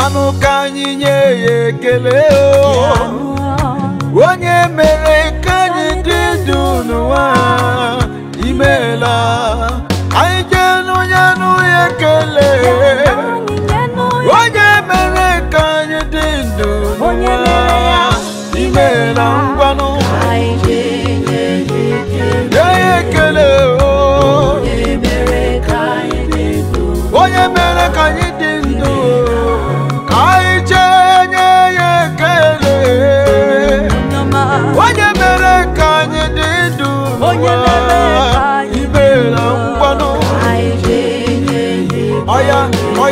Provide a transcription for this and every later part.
anụ ka anyị nye ya ekele o onye mere ka anyị dị ndụ n'ụwa imela anyị jee n'onye anụ ekele onye mere ka anyị dị ndụ n'ụwa imeela ngwanụ nye ya ekele o onye mere ka anyị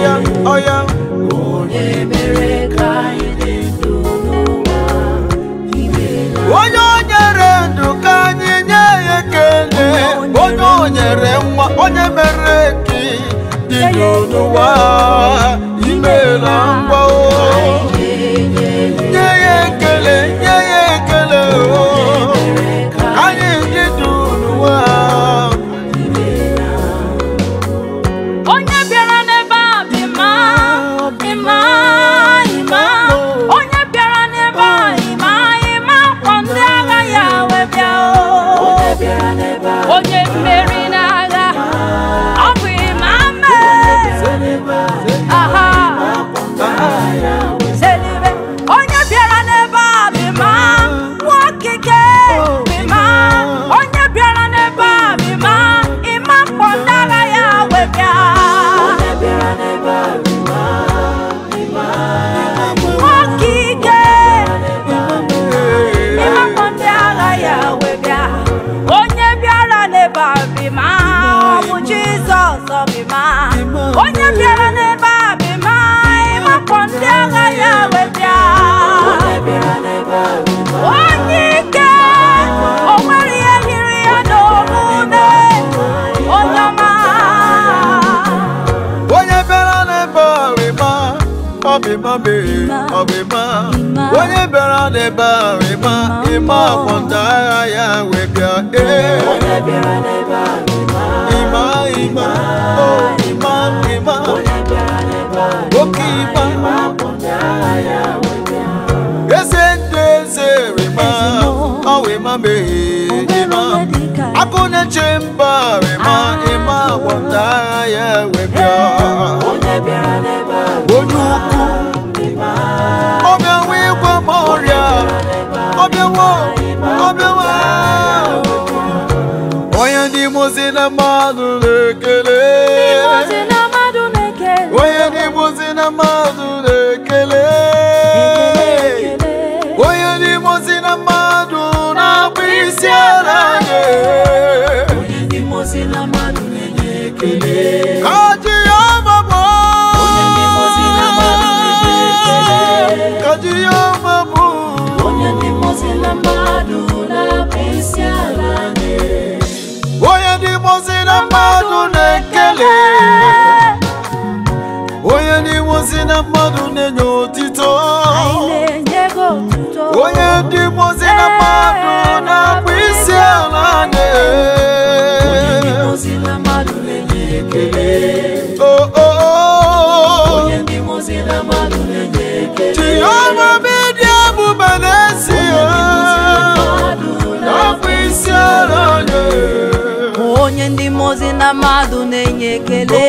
ọya ọya. onye mere ka anyị dị ndụ onye o nyere ndụ ka anyị nye ekele onye o nyere nwa onye mere ka dị ndụ n'ụwa imela ngwa nye ya ekele nye ya mabiri ọbịma onye bịara n'ebe a rịma ịma ọkpọnta agha ya wee bịa ee ịma ima o ịma ịma oke ịma eze ndị eze rịma ima, ịma meghee ịma akụ na-eche mba rịma ịma ọkpọnta agha ya wee bịa onye ukwu na mmadụ na na mmadụ na-ekele onye na mmadụ na-akpụ isi ala na mmadụ na-ekele onye n'ime si na mmadụ na-enye otito onye ndị mozi na mmadụ na-akpụ isi ala na-enye chioma oh, oh, oh. bedi na isi na onye ndị mozi na mmadụ na-enye ekele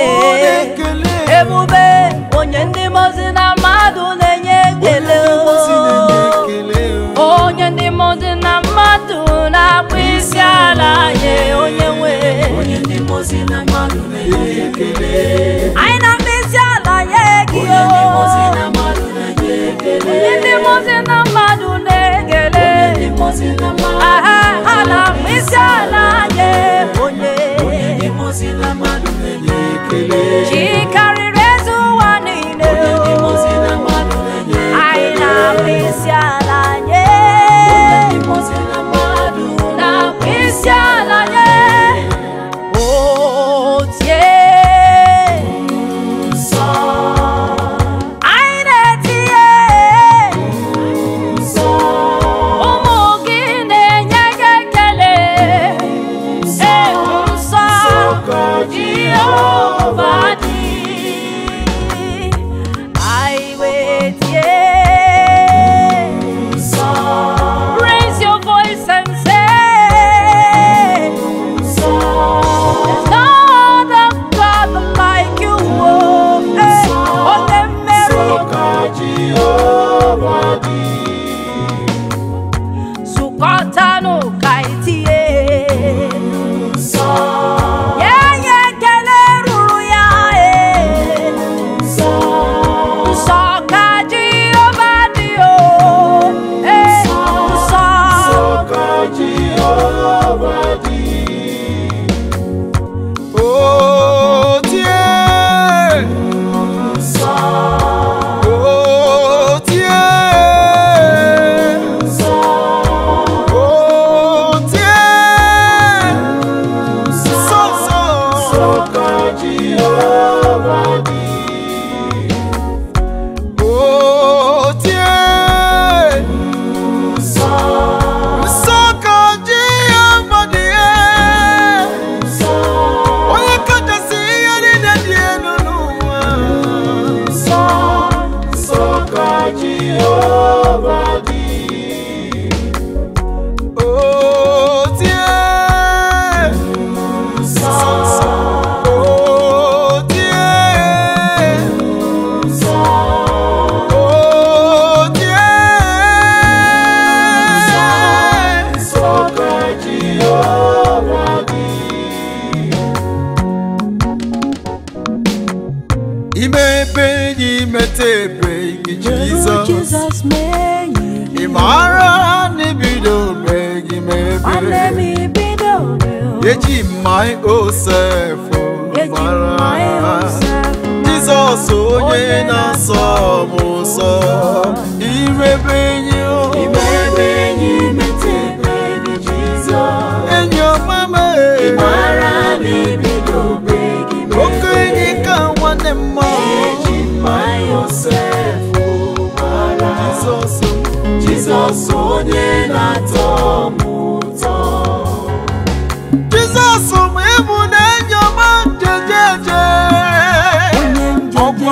ebube onye ndị mozi na mmadụ na-enye ekele onye ndị mozi na mmadụ na-akpụ isi ala nye onye nwe anyị na-akpụ isi ala nye gị onye ndị oh. mozi na mmadụ na-ekele ha na-akpụ isi ala my own self oh, e mara Jizọs onye na-asọ m ụsọ irebe enyi o enyi ọma m oke enyi ka nwanne m mma Jizọs onye na-atọ m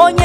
onye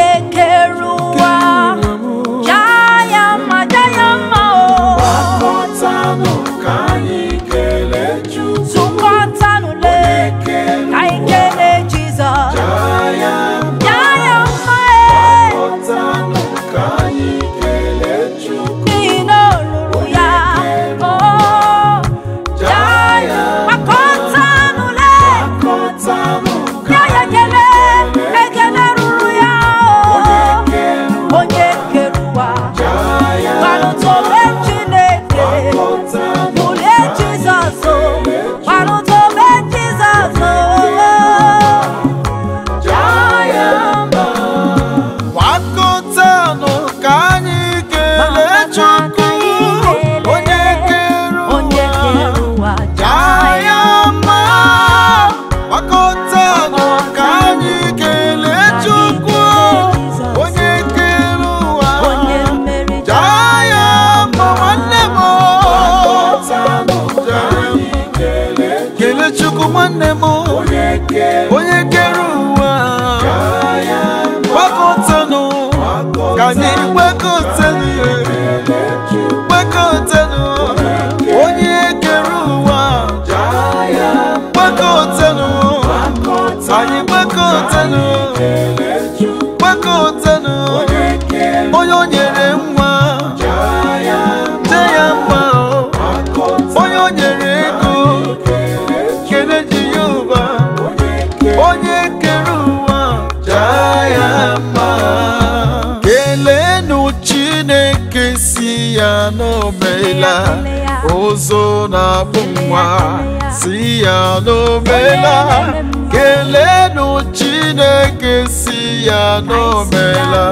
nwekeotena onye o nyere nwa te ya mma onye o nyere ego kele ji ya ụba onye kere ụwa jaa ya mma keleenụ Chineke si ya n'omela ozo na-akpụ nwa si ya n'omela kelenu chineke si ya n'omela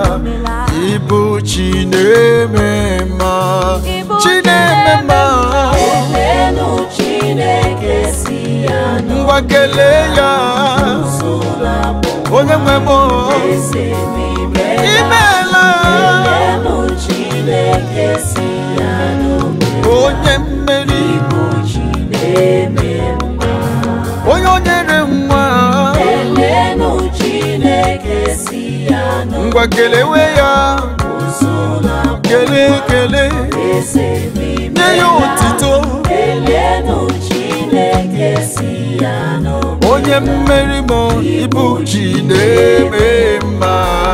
ịbụ chinemema chinemema ngwa kelee ya onye nwe m imeela onye mmeri onye o nyere nwa ngwa kelewe ya kele kele nye ya otito onye mmeri ma ibu na-eme mma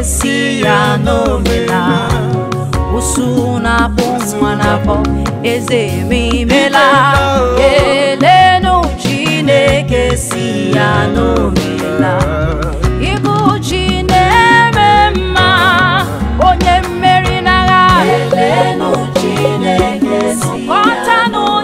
esi ya n'omela usu na-abụ nwa na-abọ eze ememela chine chineke si ya igu chine chi na-eme mma onye mmeri n'agha elenu chineke si ya n'omela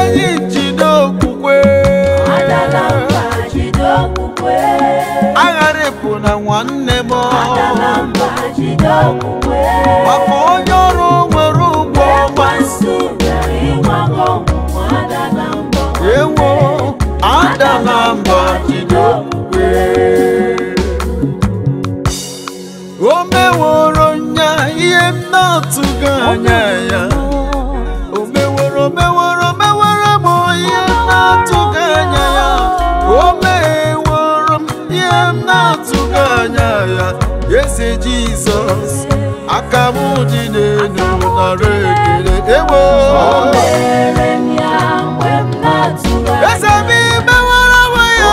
enyi jideokwukwe agharịpụ na nwanne m maka onye ọrụ Jesus akamụ dị n'elu nara ekele ewo eze m imewara onwe ya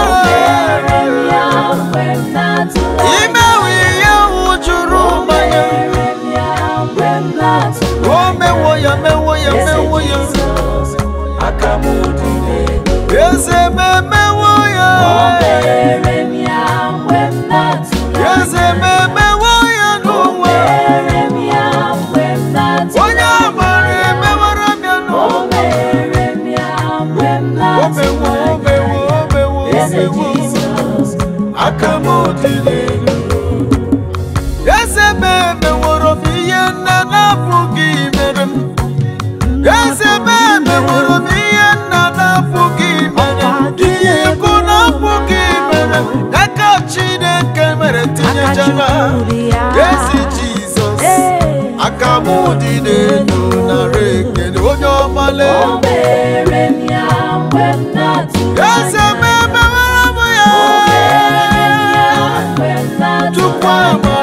imewe ihe wụjuru mmanya o mewo ya mewo ya mewo ya eze m dịdenụ narị ekele onye ọma eze m emewere m ya tupu ama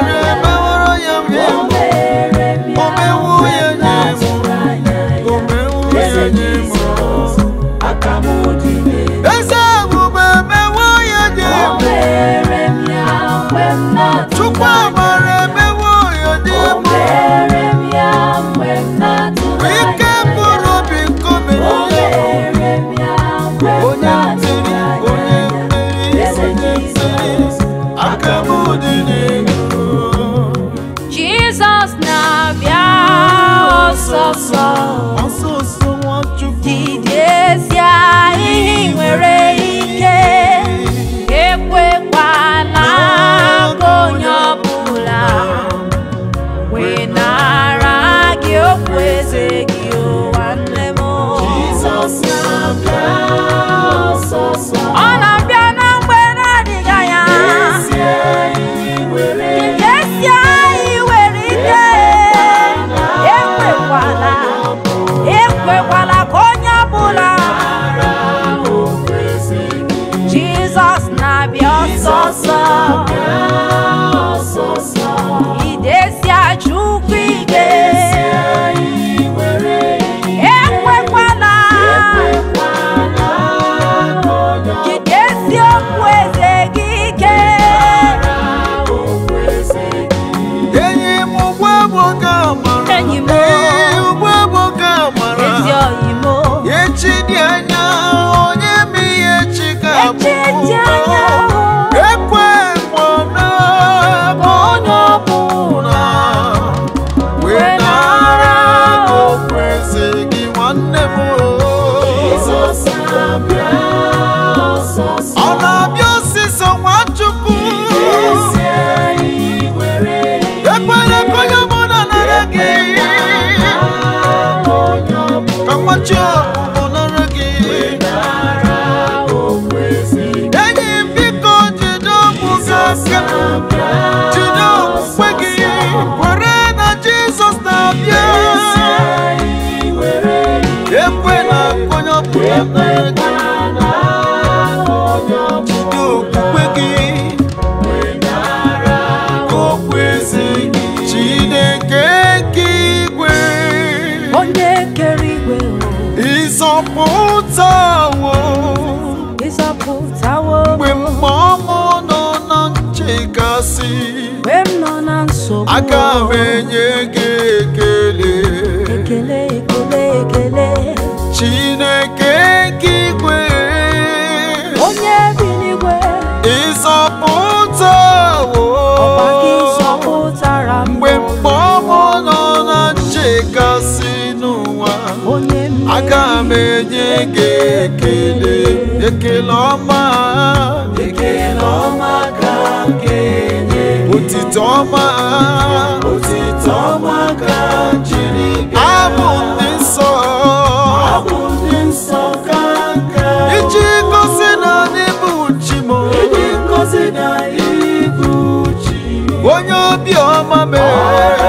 aka m enye gị ekele ekele ekele ekele Chineke nke igwe onye bi n'igwe ịzọpụta mgbe mkpọmụ nọ na nchekasị n'ụwa aka m enye gị ekele ekele ọma ekele ọma òtítọ́ máa. òtítọ́ máa ká jírí gẹ̀ẹ́. àbùdí sọ. àbùdí sọ káàkà. ìjì ngosi na n'ibu chi m. ìjì ngosi na ibu chi. onye obi ọma mee.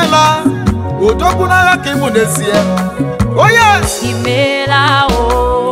imeela odogwu n'agha ka ịmụ na-esie onye oh, imeela o oh.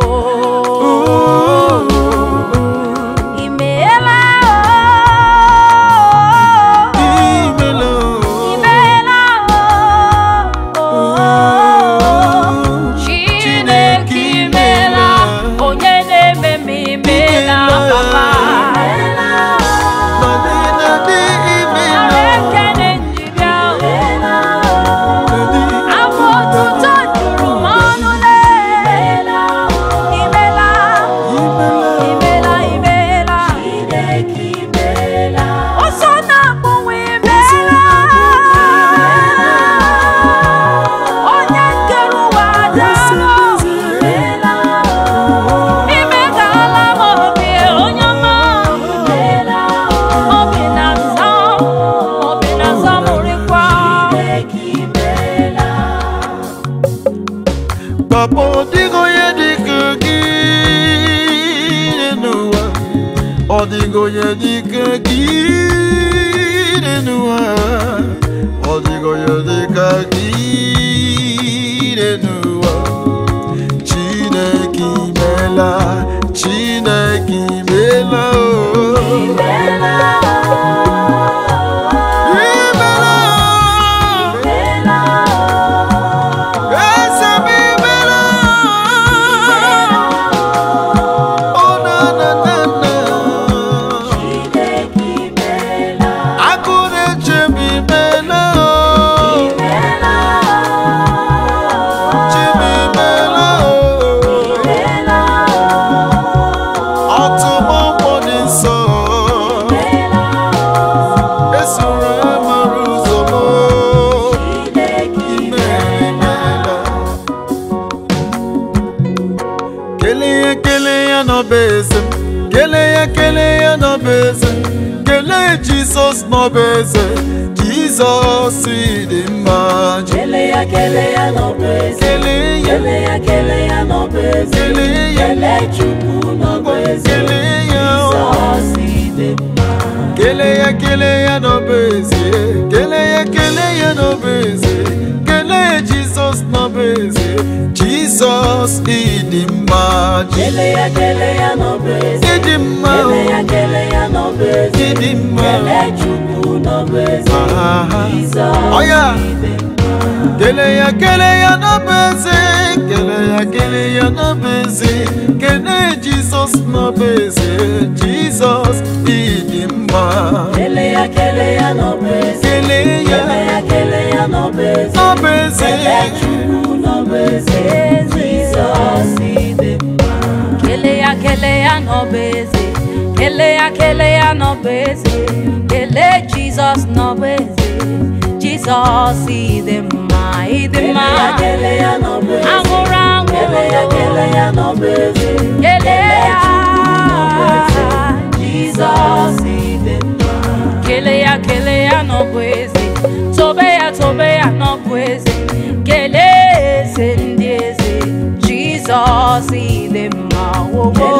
сегодня никаких n'ọbụ eze Jizọs dị mma kele ya kele ya no eze kele ya kele ya no eze kele ya kele Chukwu n'ọbụ eze oh. Jizọs dị mma kele ya kele ya no eze kele ya kele ya no eze kele Jesus no eze Jesus dị mma Kele ya kele ya n'obezi Didi mma Kele ya kele ya n'obezi Didi mma Kele Chukwu n'obezi Iza ibe mma Kele ya kele ya n'obezi Kele ya kele ya n'obezi Kele Jizọs n'obezi Jizọs ịdị mma Kele ya kele ya n'obezi Kele ya Kele ya n'obezi N'obezi Kele Chukwu n'obezi Jizọs ịdị mma kelea kelea no busy. kelea kelea no busy. kele jesus no busy. jesus ide mma ide mma anwụrụ anwụrụ kelea Kelea, no busy. kelea jesus ide mma kelea kelea no busy. tobe ya no busy. boss, see them all. Oh, oh.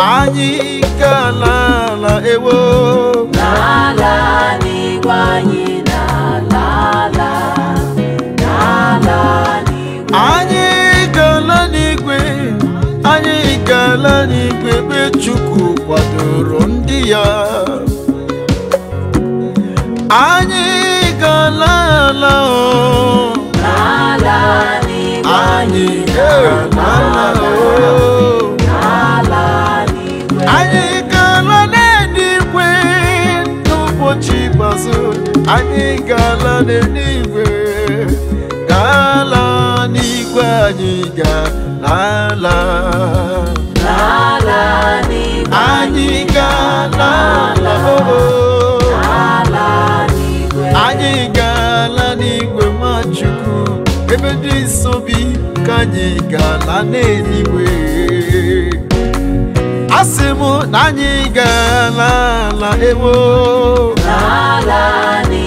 anyị ka n'ala ewo n'ala n'igwe anyị n'ala ala n'ala n'igwe anyị gala n'igwe anyị gala n'igwe ebe Chukwu kwadoro ndị ya anyị gala ala n'ala n'igwe anyị gala o. anyị ga-ala n'eluigwe ga-ala n'igwe anyị ga-ala anyị ga-ala anyị ga-ala n'igwe Nwachukwu ebe dị nsọ bi ka anyị ga-ala n'eluigwe asị m na anyị ga ala ewo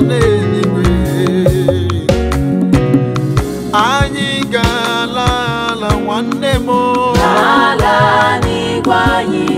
n'eluigwe anyị ga-ala ala nwanne m ala n'igwe anyị